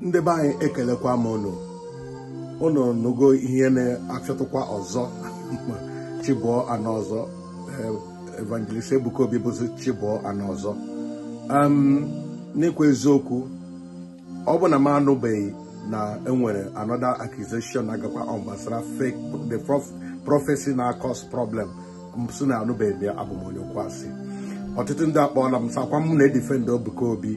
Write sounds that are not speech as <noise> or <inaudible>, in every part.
ndị be anyị ekelekwa m unu unu nụgo ihe na-achọtụkwa ọzọ <laughs> chibụọ anọ ọzọ evangelist Ebuka Obi bụzi chibụọ anọ ọzọ n'ikwu eziokwu ọ bụ na m anụbeghị na enwere another accusation na-agakwa ọ gbasara fake the prophecy na-akọs problem msi na anụbeghị ya abụ onye kwasị ọtụtụ ndị akpọọla m sakwa m na-edifendị Ebuka Obi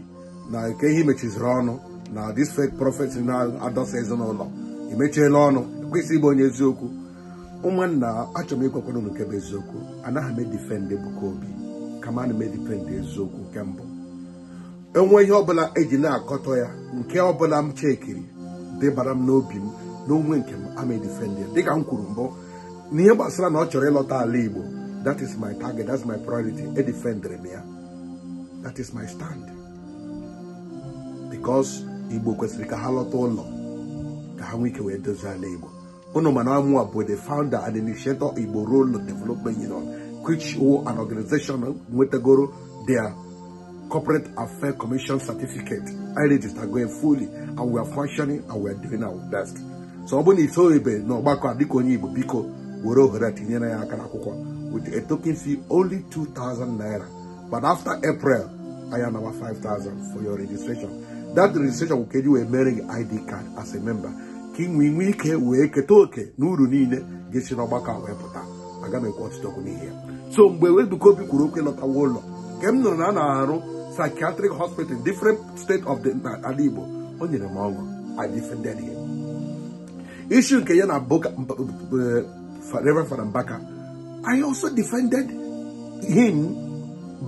na nke ihe mechiziri ọnụ na this fake prophet na-adọsa ezinụlọ emechiela ọnụ kwesị ịbụ onye eziokwu ụmụnna achọrọ m ịkwekwara nke bụ eziokwu anaghị m edifendị Ebuka Obi kama ana m edifendị eziokwu nke mbụ enwe ihe ọbụla eji na-akọtọ ya nke ọbụla m chekiri dịbara m n'obi m na onwe nke m ama edifendị ya dịka m kwuru mbụ n'ihe gbasara na ọ chọrọ ịlọta ala Igbo that is my target is my priority edifendịrị m ya that is my stand because igbo kwesịrị ka ha lọta ụlọ ka ha nwee ike wee dozie ala igbo unu mana amu bụ the founder and initiator igbo role development union which wo an organization nwetagoro their corporate affairs commission certificate i register going fully and we are functioning and we are doing our best so ọ bụrụ na itoghebe na ọgbakọ a dịka onye igbo biko were ohere tinyere ya aka n'akwụkwọ with a token fee only 2000 naira but after april higher number 5,000 for your registration. That registration will get you a marrying ID card as a member. King we nwee ike wee keta oke n'uru niile ga-esi n'ọgbakọ a wee pụta aga m ọtụtụ okwu n'ihe so mgbe Ebuka Obi kwuru okwu lọtawa ụlọ nke na a na-arụ psychiatric hospital different state of the ala Igbo o nyere m ọṅụ I defended him issue nke ya eh, Reverend Fada I also defended him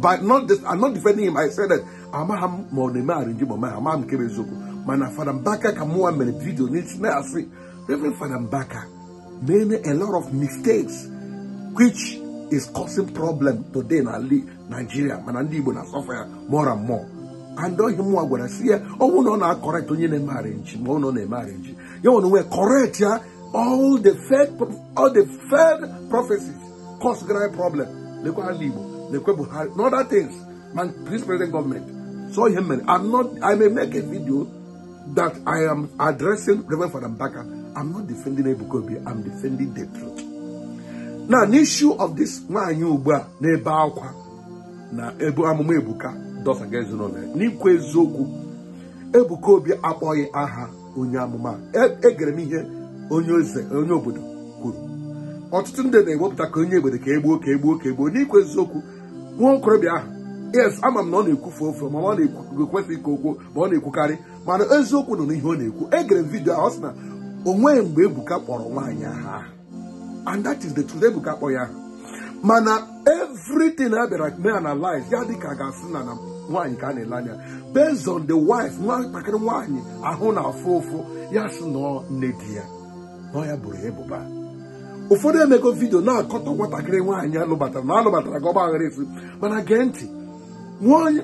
But not this, I'm not defending him. I said that Amaham Monema Arrange Mama Amam Kebezuku. Mana Fadambaka Kamua Menepito Nichne Asi. Reverend Fadambaka made a lot of mistakes which is causing problem today in Ali, Nigeria. Manandi Bona suffer more and more. And though him are gonna see oh no na correct on your marriage, no no marriage. You want to correct ya all the third all the third prophecies cause great problem. Look at Libo. na-ekwe Buhari na other things my this present government so ihe mere I'm not I may make a video that I am addressing Reverend Father Mbaka I'm not defending Ebuka Obi I'm defending the truth na n'issue of this nwaanyị ugbu a na-ebe akwa na ebu amụma Ebuka dọsaga ezinụlọ n'ikwu eziokwu Ebuka Obi akpọghị aha onye amụma egere e m ihe onye eze onye obodo kwuru ọtụtụ ndị na-ewepụta ka onye obodo ka egbuo ka egbuo ka egbuo n'ikwu eziokwu nwa okorobịa ahụ yes ama m na ọ na-ekwufe ofe ma ọ na-ekwesịghị ka okwu ma ọ na-ekwukarị mana eziokwu nọ n'ihe ọ na-ekwu egere m vidio ọ sị na o nweghị mgbe Ebuka kpọrọ nwaanyị aha and that is the truth Ebuka kpọ ya mana everything a bịara na analyze ya dị ka ga-asị na na nwaanyị ka a na-ele anya based on the wife nwatakịrị nwaanyị ahụ na afụ ụfụ ya sị na nne di ya na ọ ya bụrụ ebuba. ụfọdụ emego vidio na-akọtọ nwatakịrị nwaanyị alụbatara na alụbatara gị ọgba aghara efu mana gee ntị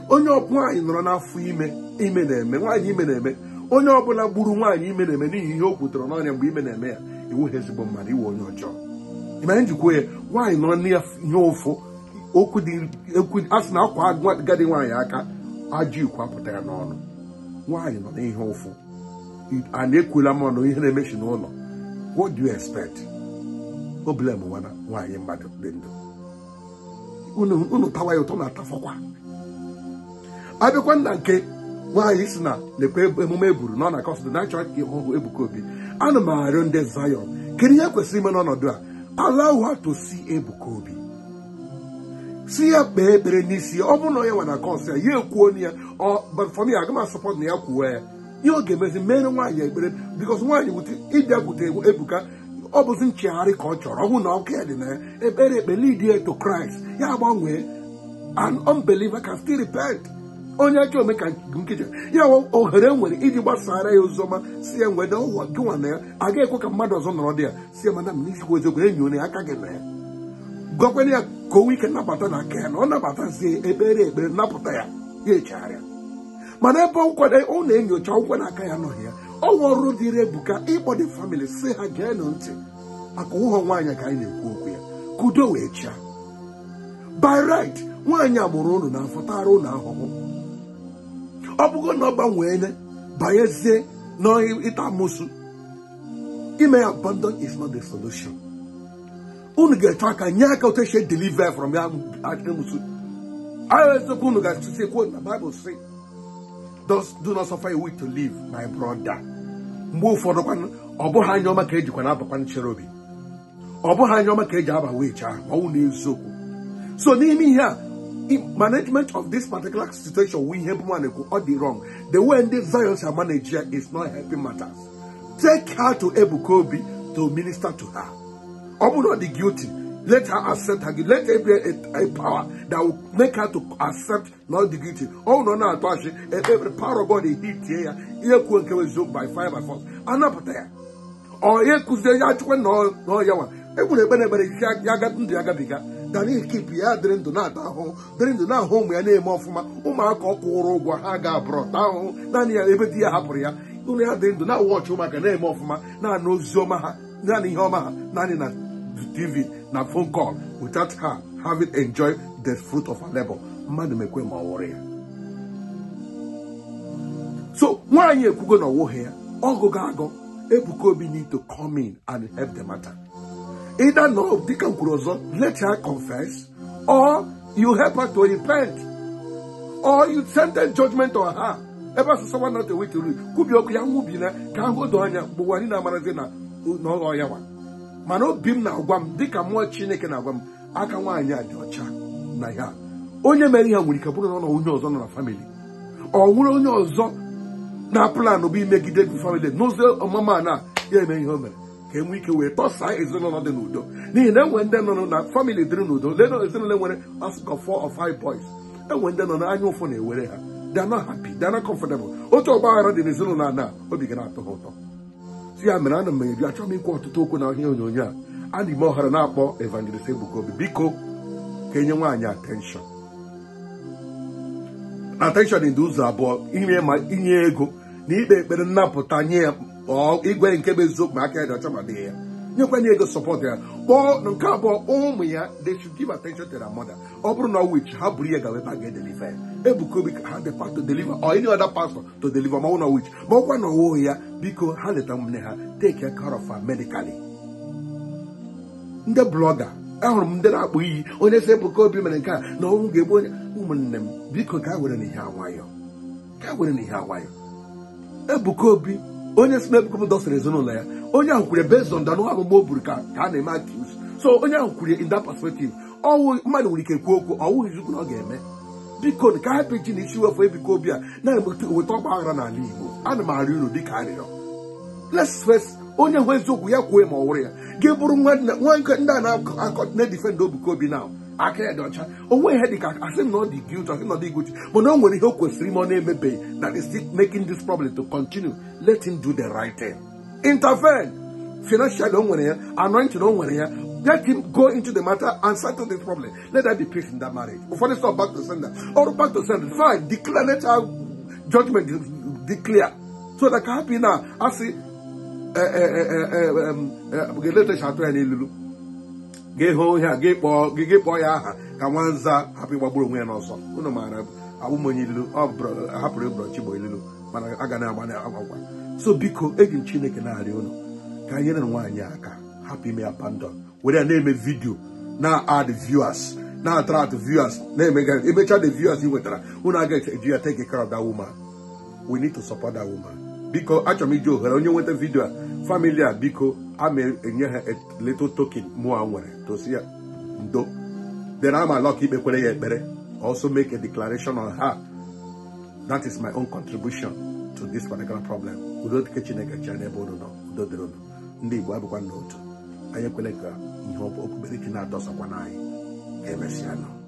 onye nwaanyị nọrọ n'afọ ime ime na-eme nwaanyị ime na-eme onye ọbụla gburu nwaanyị ime na-eme n'ihi ihe o kwutere n'ọnya mgbe ime na-eme ya iwughị ezigbo mmadụ iwe onye ọjọọ ịmanye njikwa ya nwaanyị nọ n'ihe ụfụ a sị na akwa gadi nwaanyị aka ajọ ikwu apụta ya n'ọnụ nwaanyị nọ n'ihe ụfụ a na-ekwula mmanụ ihe na-emechi n'ụlọ what expect problem nwana nwaanyị mmadụ dị ndụ unu tawa ya ụtọ na-atafọkwa abịakwa nna nke nwaanyị si na lekwa emume eburu na ọ na kọsd na-achọ aka ihe ọgwụ ebuka obi ana m arịọ ndị Zion kedu ihe e kwesịrị ime n'ọnọdụ a ala her to see ebuka obi si ya kpee ekpere n'isi ọ bụrụ na onye nwa na kọs ya ya ekwuo onye ya ọbafọmi aga m asọpọt na ya kwuo ya ihe ọ ga-emezi mere nwaanyị ekpere bikos nwaanyị wute ịbịa bute ebuka ọ bụzi nchegharị ka ọ chọrọ ọ bụ na ọkụ dị na ya ekpere ekpe lead to Christ ya gbanwee an unbeliever can still repent onye ajọ ome ka nkeji ya ohere e nwere iji gbasara ya oziọma si ya nwede ụwa gịnwa na ya aga ekwe ka mmadụ ọzọ nọrọ dị ya si ya mana m n'izikwa eziokwu enyi onye aka gị na ya gwakwena ya ka o nwee ike na aka ya na ọ nabata si ekpere ekpere napụta ya ya echegharịa mana ebe nkwere ọ na-enyocha nkwe na aka ya nọghị ya ọ ọrụ dịrị ebuka ịkpọ dị famili si ha geenụ ntị maka ụhọ nwaanyị ka anyị na-ekwu okwu ya ka udo wee chia by right nwaanyị agbụrụ ụnụ na-afụtara ụnụ ahụhụ ọ bụgo na ọ gbanweele banyezie n'ịta amụsụ ime ya abandon is not the solution unu ga-eche aka nye aka otu esi deliver from ya amụsụ ahụ eziokwu unu ga-achụsi ekwu na Bible si do not suffer a week to live my brother mgbe ụfọdụ kwanụ ọ bụghị anya ọma ka ejikwa na-abakwa nchere obi ọ bụghị anya ọma ka eji aba wee chaa ma ọnwụ n'eziokwu so n'ime ihe a management of this particular situation we help one or the wrong. The way the Zions are managed is not helping matters. Take her to Ebu Kobi to minister to her. I'm not the guilty. Let her accept her gift. Let be a, a power that will make her to accept not the guilty. Oh no, no, e, every power of God he hit here. Here could by fire by force. Anapataya. Or here could say ya oh, no no yawa. Every benefit keep ya drin do not home. Drin do not home ya name of ma umako haga brought ebe dia hapuria. Unu ya drin do not watch umaka name of ma na no zoma ha. Nani homa ha. Nani na TV. na phone call without her having enjoyed the fruit of her labor mmadụ mekwe ma ọ wụrụ ya so nwaanyị ekwugo na ọwụghị ya ọgụgụ agụ ebuka obi need to come in and help the matter either na dịka m kwuru ọzọ let her confess or you help her to repent or you send the judgment on her ebe asụsụ nwa not a week to read kwubi okwu ya nwubi na ka ahụ doo anya mgbe nwanyị na-amarazi na ọghọ ya nwa mana obi m na-agwa m ka mmụọ chineke na-agwa m aka nwaanyị a dị ọcha na ya onye mere ihe nwere ike bụrụ na ọ nọ onye ọzọ nọ na famili ọ nwere onye ọzọ na plan bụ imegide gị famịlị n'ụzọ ọmụma na ya eme ihe o mere ka e ike wee tọsaa ezinụlọ dị n'udo n'ihi na enwere ndị nọ na famili dịrị n'udo lee na ezinụlọ nwere asụkọ four of five boys enwere ndị nọ n'anya ụfụ na-ewere ha they are not happy they are not comfortable otu ọgba aghara dị n'ezinụlọ a na obi ga na-atọ ha ụtọ ya mere ana m eri achọghị m ikwu ọtụtụ okwu na ihe onyonyo a a na ime ọhara na-akpọ evangelist Ebuka biko ka enye nwaanyị attention attention dị ụzọ abụọ inye ego na ikpe ekpere nnapụta nye ya igwe nke bụ eziokwu ma aka ya dị ọcha ya nyekwana ego sọpọtụ ya kpọọ nke abụọ ụmụ ya they should give attention to their mother ọ bụrụ na wich ha buru ya gawa ebe a ga-edeliva ya ebuka obi ha dịpa to deliver or any other pastor to deliver ma ọ na wich ma ọkwa na ọwụghị ya biko ha leta nne ha take care of her medically ndị blọga ahụrụ m ndị na akpụ iyi onye si ebuka obi mere nke a na ọnwụ ga-egbu onye ụmụnne m biko gaa were n'ihe awayọ gaa were n'ihe awayọ ebuka obi onye si n'ebuko m dọsara ezinụlọ ya onye ahụ kwere based on danụ agbụgbọ o buru ka a na-eme accuse so onye ahụ kwere in that perspective ọwụ mmadụ nwere ike kwuo okwu ọwụghị chukwu na ọ ga-eme biko ka hapụ ji na isi wefe ebiko obi a na-eweta ọgba aghara n'ala Igbo ana m arịọ unu dịka arịrịọ let's face onye hụ eziokwu ya kwuo ma ọ wụrụ ya ga-ebụrụ nwa ndị a na-edifendị obuko obi na aka ya dị ọcha o nweghị ihe dị ka asị na ọ dị guilt asị na ọ dị guilt mana o nwere ihe o kwesịrị ime ọ na-emebeghị that is still making this problem to continue let him do the right thing intervene Financial o nwere ya anointing o nwere ya let him go into the matter and settle this problem let that be peace in that marriage ụfọdụ stop back to sender or back to sender fine declare let our judgment declare so that can happen. Now na asị ga-eletacha atụ ya n'ilulu gị hụ gị a gị kpọọ ya aha ka nwanza hapụ ịgbagburu onwe ya n'ọsọ unu maara abụmonye ilu ọ hapụrụ ịbụrọ chigbo ilu mana a ga na-agba agwagwa so biko eji m chineke na-arịọ ụlọ ka e nyere nwaanyị aka hapụ ime ya pandọn were ya na-eme vidio na ad viewers na-attract viewers na-emega emecha the viewers ị nwetara unu aga eji ya take care of we need to support that woman biko achọrọ m iji ohere onye nweta vidio a Family, biko ama enye a little token i nwere to ya ndo then am a lucky ikpekwere ya ekpere also make a declaration on her that is my own contribution to this particular problem udo dike chineke chịa n'ebe ụnụ nọ udo dịrị ụnụ ndị igbo abụkwa n'otu anyị ekwele ka ihe okpukperechi na-adọsakwa n'anyị ga-emesịa